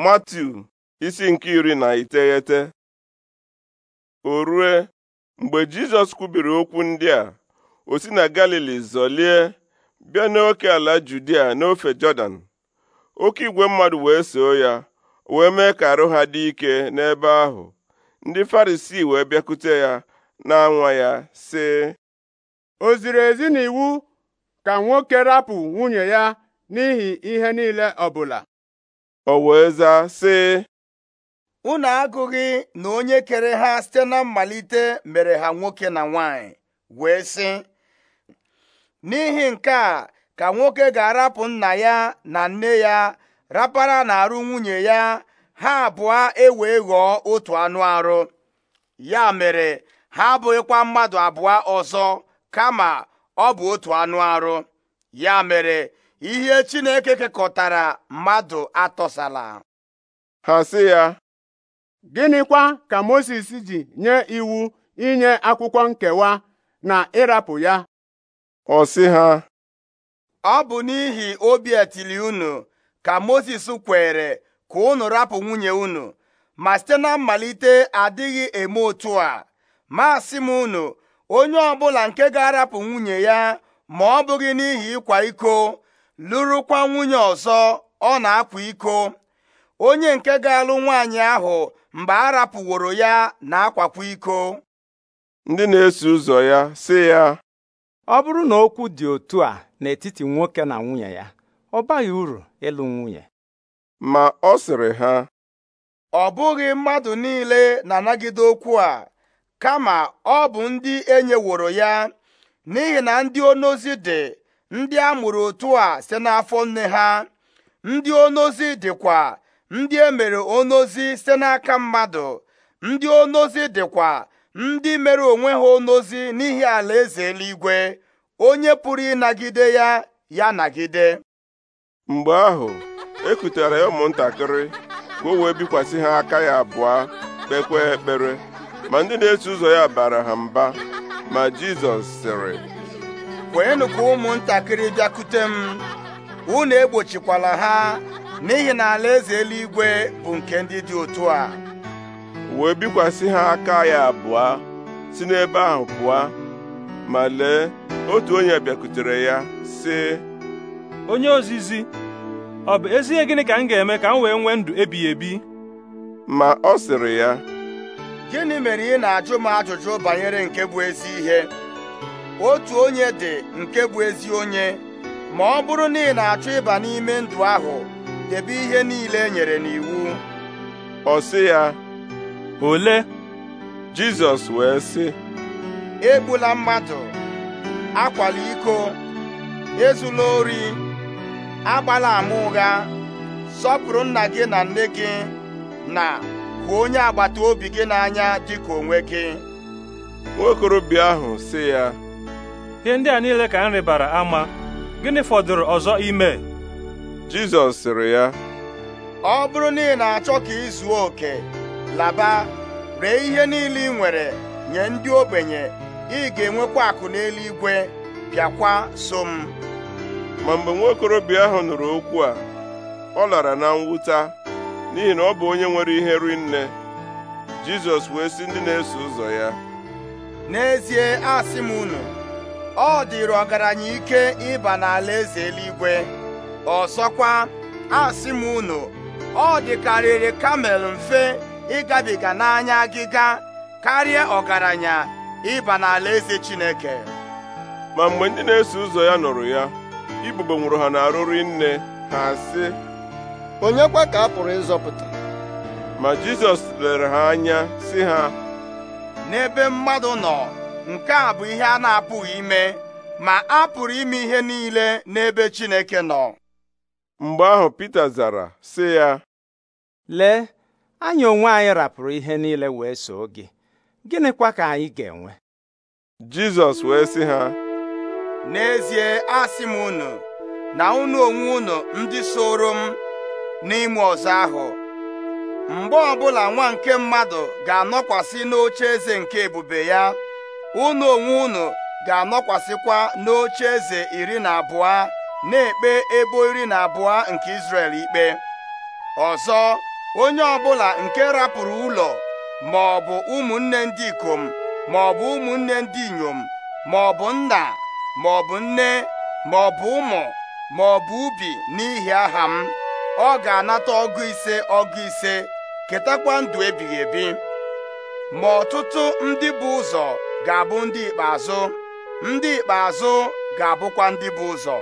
Matiu isi nke iri na iteghete o rue mgbe Jizọs kwubiri okwu ndị a o si na Galili zọlie bịa n'oke ala Judia n'ofe Jọdan oke igwe mmadụ wee soo ya wee mee ka arụ ha dị ike n'ebe ahụ ndị Farisii wee bịakute ya na-anwa ya sị o ziri ezi iwu ka nwoke rapụ nwunye ya n'ihi ihe niile ọbụla o wee zaa sị unu agụghị na onye kere ha site na mmalite mere ha nwoke na nwanyị wee sị n'ihi nke a ka nwoke ga-arapụ nna ya na nne ya rapara na-arụ nwunye ya ha abụọ ewee ghọọ otu anụ arụ ya mere ha abụghịkwa mmadụ abụọ ọzọ kama ọ bụ otu anụ arụ ya mere ihe Chineke kekọtara mmadụ atọsala ha si ya gịnịkwa ka Mozis ji nye iwu inye akwụkwọ nkewa na ịrapụ ya ọ si ha ọ bụ n'ihi obi etili unu ka Mozis kwere ka unu rapụ nwunye unu ma site na mmalite adịghị eme otu a ma m unu onye ọbụla nke ga-arapụ nwunye ya ma ọ bụghị n'ihi ịkwa iko lụrụkwa nwunye ọzọ ọ na-akwa iko onye nke ga-alụ nwaanyị ahụ mgbe a rapụworo ya na-akwakwa iko ndị na-eso ụzọ ya sị ya ọ bụrụ na okwu dị otu a n'etiti nwoke na nwunye ya ọ baghị uru ịlụ nwunye ma ọ sịrị ha ọ bụghị mmadụ niile na-anagide okwu a kama ọ bụ ndị enyeworo ya n'ihi na ndị onozi dị ndị a mụrụ otu a site n'afọ nne ha ndị onozi dịkwa ndị e mere onozi site n'aka mmadụ ndị onozi dịkwa ndị mere onwe ha onozi n'ihi alaeze eluigwe onye pụrụ ịnagide ya ya nagide mgbe ahụ ekutere ya ụmụntakịrị ka o wee bikwasị ha aka ya abụọ kpekwa ekpere ma ndị na-eso ụzọ ya bara ha mba ma Jizọs sịrị kweenụ ka ụmụntakịrị bịakute m unu egbochikwala ha n'ihi na alaeze eluigwe bụ nke ndị dị otu a wee bikwasị ha aka ya abụọ si n'ebe ahụ pụọ ma lee otu onye bịakutere ya sị onye ozizi ọ bụ ezie gịnị ka m ga-eme ka m wee nwee ndụ ebighị ebi ma ọ sịrị ya gịnị mere ị na-ajụ m ajụjụ banyere nke bụ ezi ihe otu onye dị nke bụ ezi onye ma ọ bụrụ na ị na-achọ ịba n'ime ndụ ahụ debe ihe niile e nyere n'iwu ọ sị ya ole Jizọs wee sị egbula mmadụ akwala iko ezula ori agbala ama ụgha sọpụrụ nna gị na nne gị na hụ onye agbata obi gị n'anya dịka onwe gị nwokorobịa ahụ sị ya ihe ndị a niile ka m rịbara ama gịnị fọdụrụ ọzọ ime Jizọs sịrị ya ọ bụrụ na ị na-achọ ka ị zuo oke laba ree ihe niile ị nwere nye ndị ogbenye ị ga-enwekwa akụ n'eluigwe bịakwa so m ma mgbe nwaokorobịa ahụ nụrụ okwu a ọ lara na mwụta n'ihi na ọ bụ onye nwere ihe ri nne Jizọs wee sị ndị na-eso ụzọ ya n'ezie asị m unu ọ dịrị ọgaranya ike ịba n'ala eze eluigwe ọzọkwa asị m unu ọ dịkarịrị kamel mfe ịgabiga n'anya agịga karịa ọgaranya ịba n'ala eze chineke ma mgbe ndị na-eso ụzọ ya nụrụ ya ibube nwụrụ ha n'arụrụ nne ha sị onye kwa ka a pụrụ ịzọpụta ma jizọs lere ha anya sị ha n'ebe mmadụ nọ nke a bụ ihe a na-apụghị ime ma a pụrụ ime ihe niile n'ebe Chineke nọ mgbe ahụ pete zara sị ya lee anyị onwe anyị rapụrụ ihe niile wee soo gị gịnịkwa ka anyị ga-enwe Jizọs wee sị ha n'ezie asị m unu na unu onwe unu ndị soro m n'ime ọzọ ahụ mgbe ọbụla nwa nke mmadụ ga-anọkwasị n'oche eze nke ebube ya unu onwe unu ga-anọkwasịkwa n'oche eze iri na abụọ na-ekpe ebo iri na abụọ nke Izrel ikpe ọzọ onye ọbụla nke rapụrụ ụlọ ma ọ bụ ụmụnne ndị ikom ma ọ bụ ụmụnne ndị inyom ma ọ bụ nna ma ọ bụ nne ma ọ bụ ụmụ ma ọ bụ ubi n'ihi aha m ọ ga-anata ọgụ ise ọgụ ise ketakwa ndụ ebighị ebi ma ọtụtụ ndị bụ ụzọ ga-abụ ndị ikpeazụ ndị ikpeazụ ga-abụkwa ndị bụ ụzọ